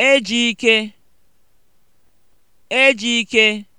ike. Ejike ike.